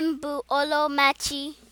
Nne m bụ